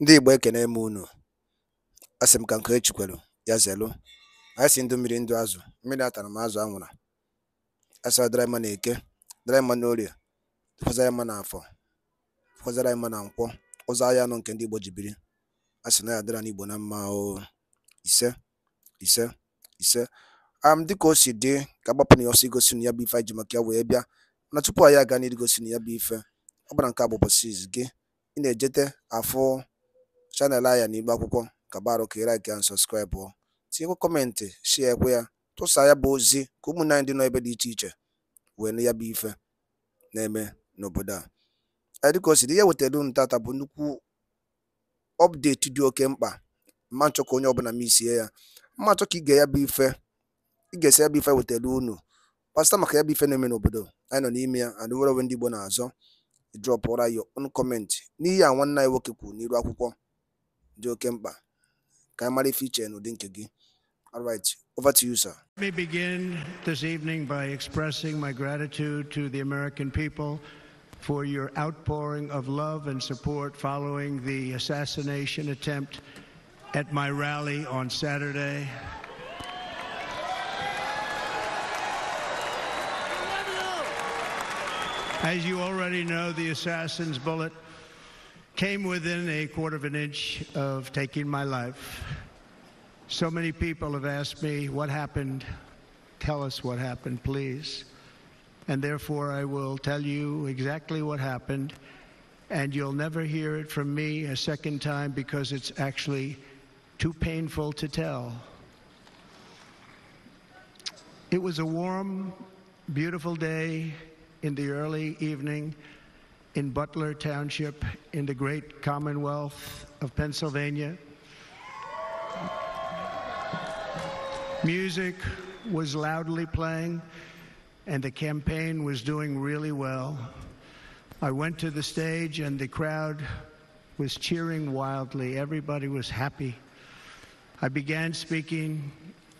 Ndị Igbo ekene m unu, a sị m ka nke e ya zelu. anyị si ndụ mmiri ndụ azụ, mmiri atara m azụ anwụra, a sị ọ dịrị mma n'eke, dịrị mma n'orie, dịkwazịrị mma n'afọ, dịkwazịrị mma na nkwọ, ụzọ ahịa anọ nke ndị Igbo ji biri, a sị na ya n'Igbo na mma o, ise ise ise um dịka o si dị ka agbapụ na ya ọsọ igosi na ya bụ ife anyị ji maka ya wee bịa na tupu anyị aga gosi na ya bụ ife ọ bụla nke a bụ ụbọchị gị ị na-ejete afụ chanel anya n'igbe akwụkwọ kabarụ ka ịraiki and ọ tinyekwa kọmentị shie ekwe ya tụsa ya bụ ozi ka ụmụnne dị nọ ebe dị iche iche wee nụ ya bụ ife na-eme n'obodo a dịka o siri ihe wetara unu tata bụ nnukwu ọpdeti dị oke mkpa ma nchọ ka onye ọbụla m isie ya mma nchọ ka ige ya bụ ife ịga esi ya bụ ife wetara unu pasta maka ya bụ ife na-eme n'obodo anyị nọ n'ime ya and were onwe ndị Igbo na-azọ drọpụra ya own comment n'ihe a nwanne anyị nwoke kwuru n'iru akwụkwọ dị oke mkpa ka mara ife iche n'ụdị nke gị all right over to you sir Let me begin this evening by expressing my gratitude to the American people for your outpouring of love and support following the assassination attempt at my rally on Saturday. As you already know, the assassin's bullet came within a quarter of an inch of taking my life. So many people have asked me, What happened? Tell us what happened, please. And therefore, I will tell you exactly what happened. And you'll never hear it from me a second time because it's actually too painful to tell. It was a warm, beautiful day in the early evening in Butler Township in the great Commonwealth of Pennsylvania. Music was loudly playing, and the campaign was doing really well. I went to the stage, and the crowd was cheering wildly. Everybody was happy. I began speaking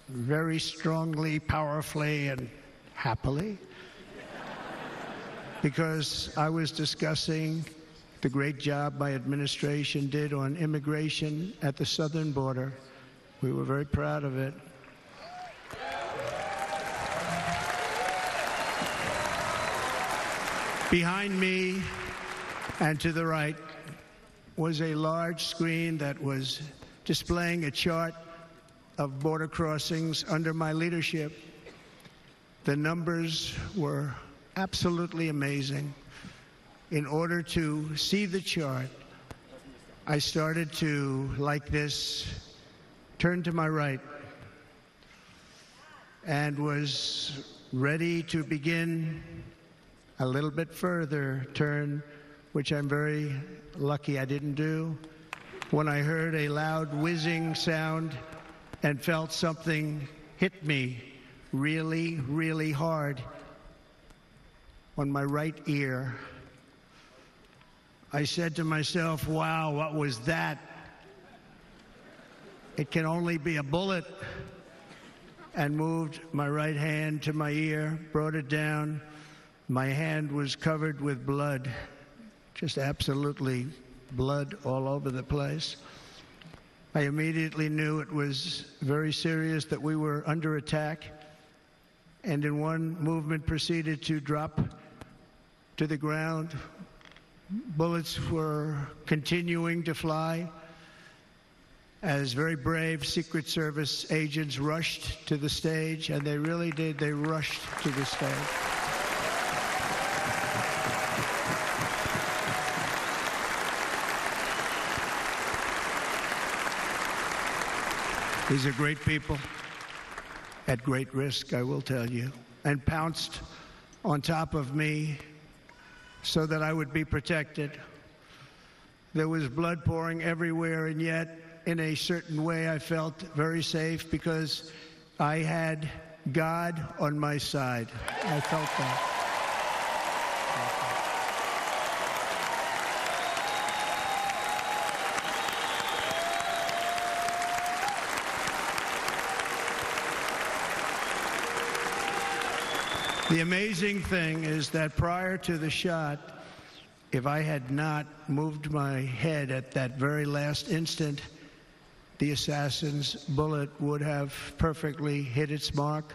very strongly, powerfully, and happily because I was discussing the great job my administration did on immigration at the southern border. We were very proud of it. Behind me and to the right was a large screen that was displaying a chart of border crossings under my leadership. The numbers were absolutely amazing. In order to see the chart, I started to, like this, turn to my right and was ready to begin a little bit further turn, which I'm very lucky I didn't do, when I heard a loud whizzing sound and felt something hit me really, really hard on my right ear. I said to myself, wow, what was that? It can only be a bullet. And moved my right hand to my ear, brought it down. My hand was covered with blood, just absolutely blood all over the place. I immediately knew it was very serious that we were under attack, and in one movement proceeded to drop to the ground. Bullets were continuing to fly as very brave Secret Service agents rushed to the stage, and they really did, they rushed to the stage. These are great people at great risk, I will tell you, and pounced on top of me so that I would be protected. There was blood pouring everywhere, and yet, in a certain way, I felt very safe because I had God on my side. I felt that. The amazing thing is that prior to the shot, if I had not moved my head at that very last instant, the assassin's bullet would have perfectly hit its mark,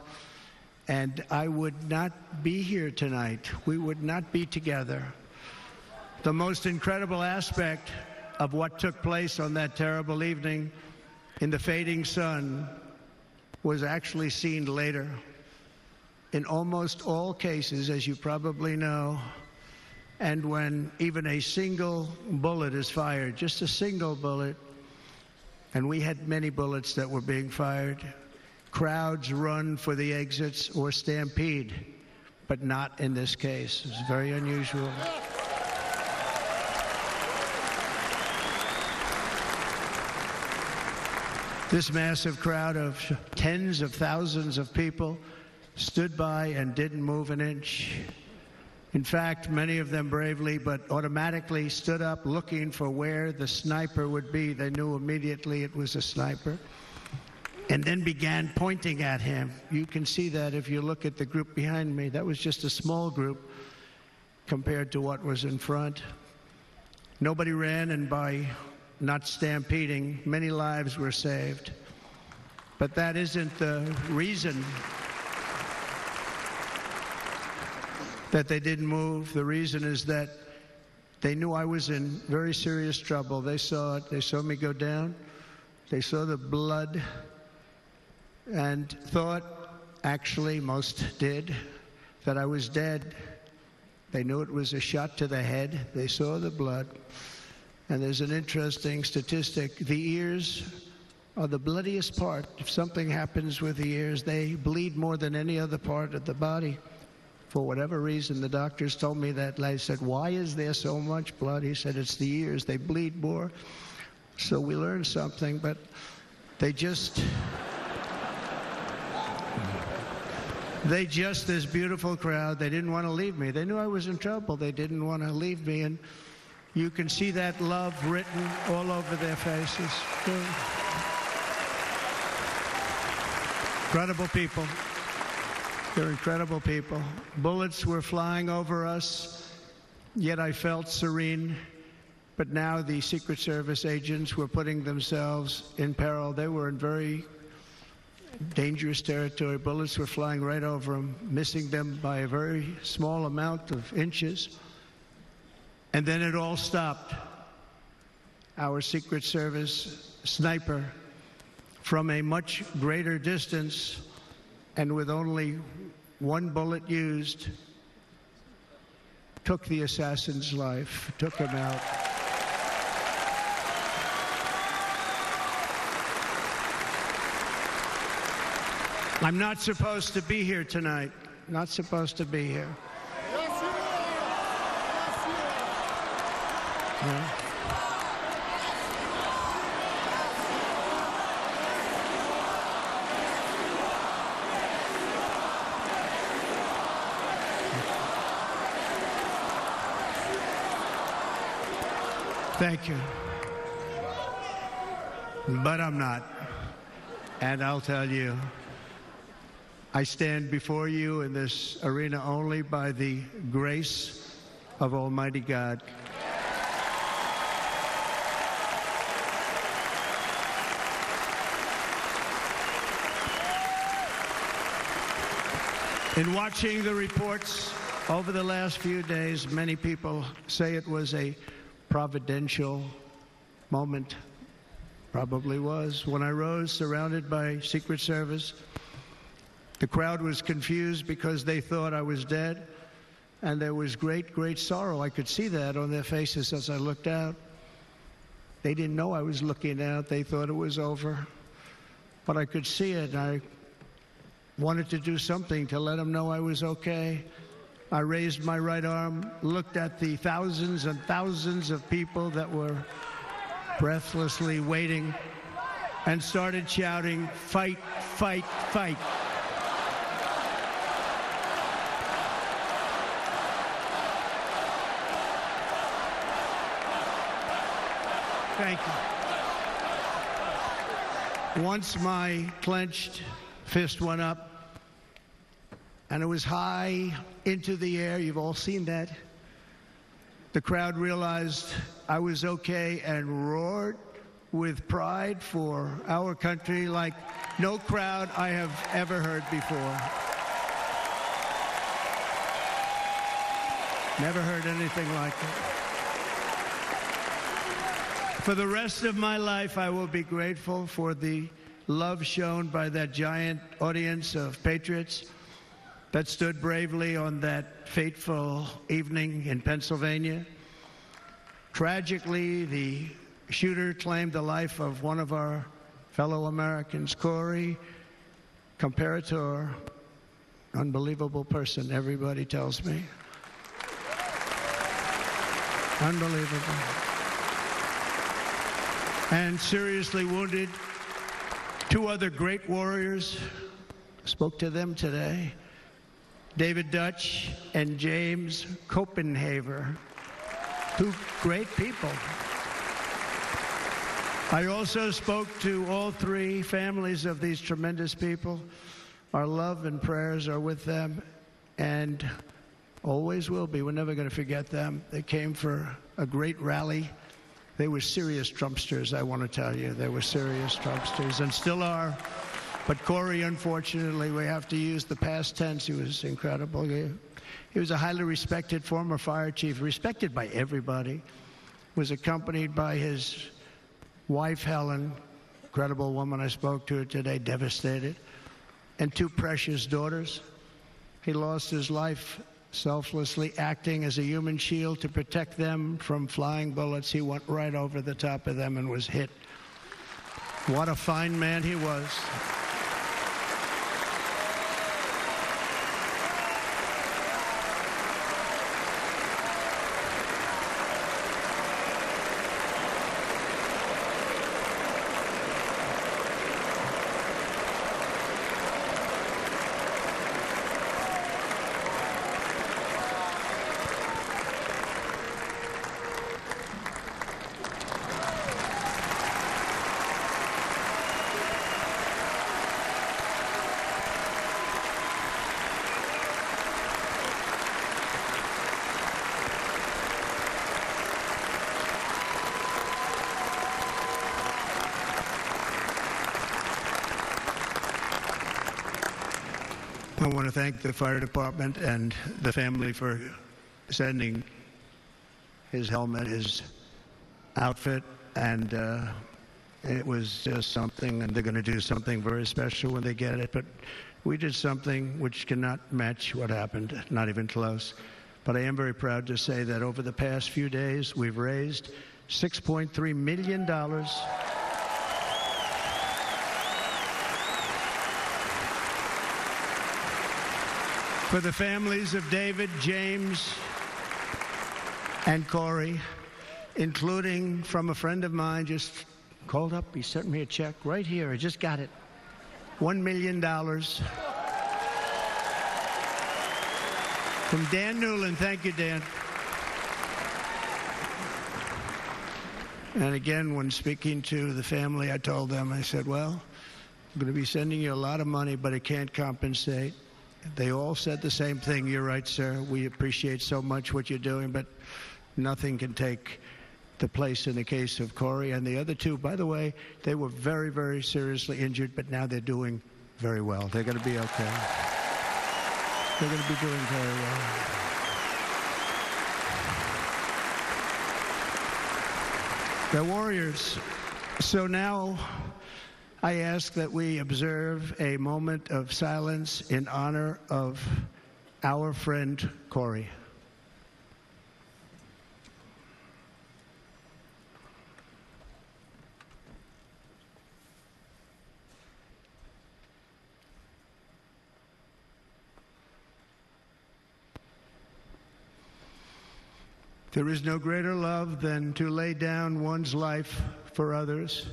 and I would not be here tonight. We would not be together. The most incredible aspect of what took place on that terrible evening in the fading sun was actually seen later in almost all cases, as you probably know, and when even a single bullet is fired, just a single bullet, and we had many bullets that were being fired, crowds run for the exits or stampede, but not in this case. It's very unusual. This massive crowd of tens of thousands of people stood by and didn't move an inch. In fact, many of them bravely but automatically stood up looking for where the sniper would be. They knew immediately it was a sniper and then began pointing at him. You can see that if you look at the group behind me. That was just a small group compared to what was in front. Nobody ran, and by not stampeding, many lives were saved. But that isn't the reason that they didn't move. The reason is that they knew I was in very serious trouble. They saw it. They saw me go down. They saw the blood and thought, actually, most did, that I was dead. They knew it was a shot to the head. They saw the blood. And there's an interesting statistic the ears are the bloodiest part. If something happens with the ears, they bleed more than any other part of the body. For whatever reason, the doctors told me that. I said, Why is there so much blood? He said, It's the ears. They bleed more. So we learned something, but they just. they just, this beautiful crowd, they didn't want to leave me. They knew I was in trouble. They didn't want to leave me. And you can see that love written all over their faces. Incredible people. They're incredible people. Bullets were flying over us, yet I felt serene. But now the Secret Service agents were putting themselves in peril. They were in very dangerous territory. Bullets were flying right over them, missing them by a very small amount of inches. And then it all stopped. Our Secret Service sniper from a much greater distance and with only one bullet used, took the assassin's life, took him out. I'm not supposed to be here tonight. Not supposed to be here. Yes, you are. Yes, you are. Yeah. Thank you. But I'm not. And I'll tell you, I stand before you in this arena only by the grace of Almighty God. In watching the reports over the last few days, many people say it was a providential moment, probably was, when I rose surrounded by Secret Service. The crowd was confused because they thought I was dead, and there was great, great sorrow. I could see that on their faces as I looked out. They didn't know I was looking out, they thought it was over. But I could see it, I wanted to do something to let them know I was okay. I raised my right arm, looked at the thousands and thousands of people that were breathlessly waiting, and started shouting, Fight, fight, fight. Thank you. Once my clenched fist went up, and it was high into the air. You've all seen that. The crowd realized I was okay and roared with pride for our country like no crowd I have ever heard before. Never heard anything like it. For the rest of my life, I will be grateful for the love shown by that giant audience of patriots that stood bravely on that fateful evening in Pennsylvania. Tragically, the shooter claimed the life of one of our fellow Americans, Corey Comparator, unbelievable person, everybody tells me. Unbelievable. And seriously wounded, two other great warriors spoke to them today. David Dutch, and James Copenhaver. Two great people. I also spoke to all three families of these tremendous people. Our love and prayers are with them and always will be. We're never going to forget them. They came for a great rally. They were serious Trumpsters, I want to tell you. They were serious Trumpsters and still are. But Corey, unfortunately, we have to use the past tense. He was incredible. He, he was a highly respected former fire chief, respected by everybody. Was accompanied by his wife, Helen, incredible woman I spoke to today, devastated, and two precious daughters. He lost his life selflessly acting as a human shield to protect them from flying bullets. He went right over the top of them and was hit. What a fine man he was. to thank the fire department and the family for sending his helmet, his outfit, and uh, it was just something, and they're going to do something very special when they get it. But we did something which cannot match what happened, not even close. But I am very proud to say that over the past few days, we've raised $6.3 million. for the families of David, James, and Corey, including from a friend of mine just called up. He sent me a check right here. I just got it. $1 million. From Dan Newland. Thank you, Dan. And again, when speaking to the family, I told them, I said, well, I'm going to be sending you a lot of money, but it can't compensate they all said the same thing. You're right, sir. We appreciate so much what you're doing, but nothing can take the place in the case of Corey and the other two. By the way, they were very, very seriously injured, but now they're doing very well. They're going to be okay. They're going to be doing very well. They're warriors. So now I ask that we observe a moment of silence in honor of our friend Corey. There is no greater love than to lay down one's life for others.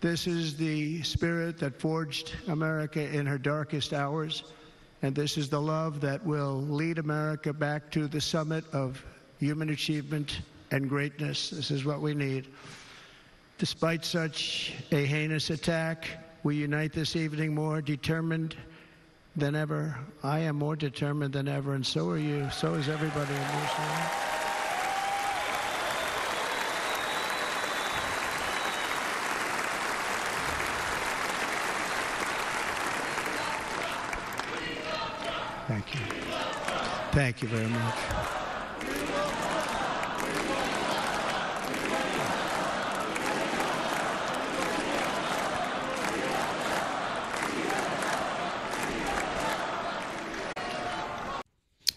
This is the spirit that forged America in her darkest hours, and this is the love that will lead America back to the summit of human achievement and greatness. This is what we need. Despite such a heinous attack, we unite this evening more determined than ever. I am more determined than ever, and so are you. So is everybody in this room. Thank you very much.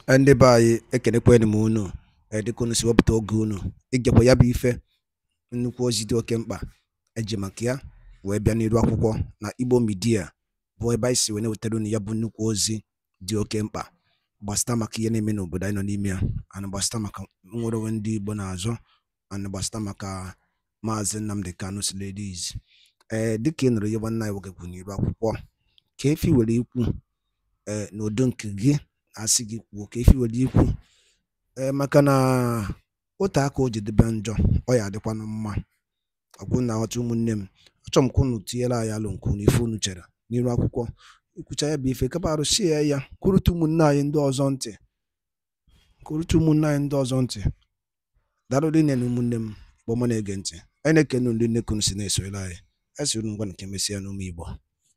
ndị be anyị ekenekwanụ m unu dịka si wepụta oge unu ịgekwa ya bụ ife nnukwu ozi dị oke mkpa eji maka ya wee bịa n'iru akwụkwọ na Igbo midia bụ ebe anyị si wee na-wetara unu ya bụ nnukwu ozi dị oke mkpa gbasịta maka ihe na-eme n'obodo anyị nọ n'ime ya ana gbasịta maka nwere onwe ndị Igbo na-azọ ana maka maazị Nnamdi Kanu Silidiz ee eh, dịka ị nụrụ ihe nwanne anyị nwoke kwuru akwụkwọ ka efi were ikwu ee eh, n'udo nke gị asị gị kwuo ka efi were ikwu ee eh, maka na otu aka o jidebe njọ ọ ya adịkwanụ mma ọkwụ na aghọta ụmụnne m achọrọ m ka tinyere anyị alụ nke unu ife unu chere n'iru akwụkwọ ikwucha ya bụ ife kapa arụsie ya kwurute ụmụnne anyị ndị ọzọ ntị kwurute ụmụnne anyị ndị ọzọ ntị daalụ nne na ụmụnne m kpọmọ na-ege ntị anyị na-ekene ndị nnekunu si na-esoyere anyị esiri ngwa nke mesịa n'ụmụ igbo